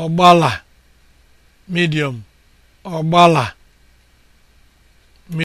ọgbala medium ọgbala